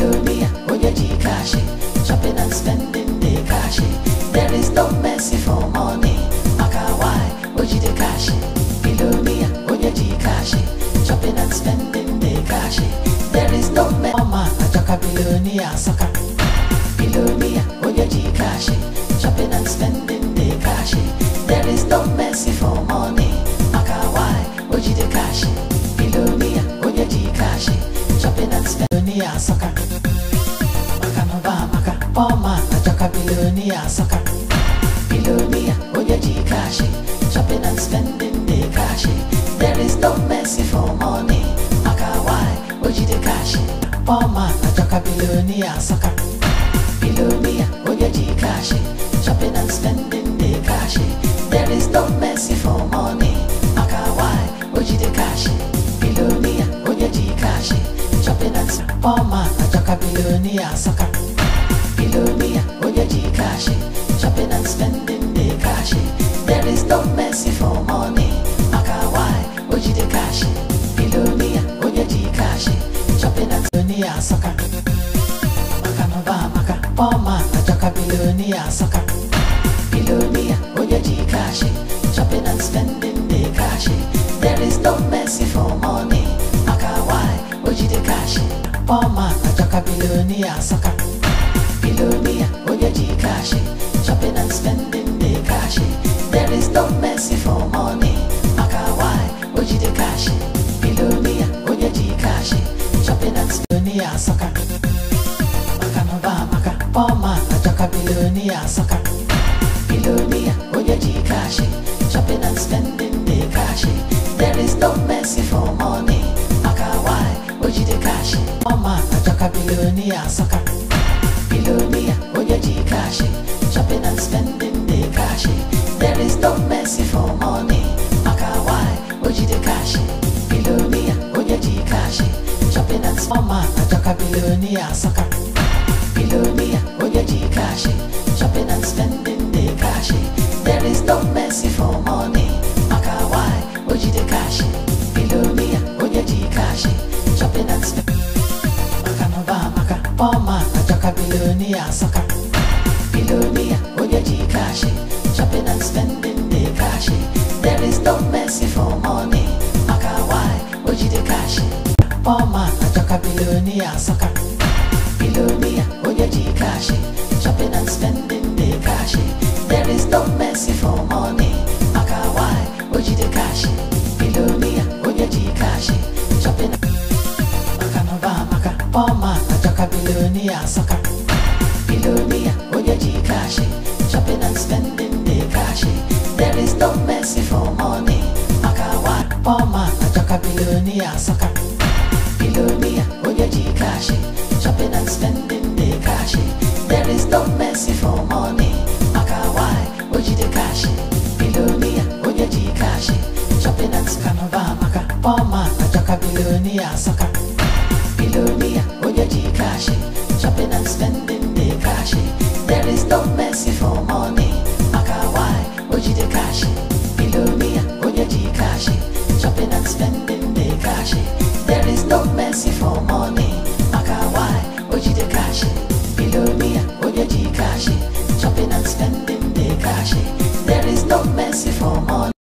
Babylonia, Onyeji Kashi, shopping and spending the Kashi. There is no mercy for money, Makawai, Ojide Kashi, Babylonia, Onyeji Kashi, shopping and spending the Kashi. There is no mercy, Mama, Ajoka Babylonia, Saka. Babylonia, Onyeji Kashi, shopping and spending the Kashi. There is no mercy for money, Makawai, Ojide Kashi, Babylonia, Onyeji Kashi, shopping and spending billionaire sucker. Maka no ba maka, poor man nataka billionaire sucker. Billionaire, onyeji cash, shopping and spending the cash. There is no mercy for money. Maka why, oji the cash. Poor man joka billionaire sucker. poor man, a jaka billionaire, sucker. Billionaire, Oyaji Kashi, shopping and spending the Kashi. There is no mercy for money, Akawai, Oji de Kashi. Billionaire, Oyaji Kashi, shopping and billionaire, sucker. Makanova, Maka, poor man, a jaka billionaire, sucker. Billionaire, Oyaji Kashi, shopping and spending the Kashi. There is no mercy for money. Boma nataka bilioni ya saka Bilioni ya ujajikashe Shopping and spending the cash There is no mercy for money Makawai ujidekashe Bilioni ya ujajikashe Shopping and spending ya maka mba maka Boma nataka bilioni ya saka Bilioni ya ujajikashe billionaire sucker. Billionaire, oh yeah, G Shopping and spending the cash. There is no mercy for money. Makawai, oh G the cash. Billionaire, oh yeah, G Shopping and spending the joker billionaire sucker. Billionaire, oh yeah, G millionaire on your Gcash Shopping and spending the cash There is no mercy for money Maka why oji the cash Poor man a joka billionaire sucker Billionaire on your Gcash Shopping and spending the cash There is no mercy for money Maka why oji the cash Billionaire on your Gcash Shopping Maka no ba maka Poor man a joka billionaire sucker millionaire sucker. Billionaire, when G cash, shopping and spending the cash. There is no mercy for money. Makawai, when you the cash. Billionaire, when you G cash, shopping and maka, sucker. G cash, shopping and spending the cash. There is no mercy.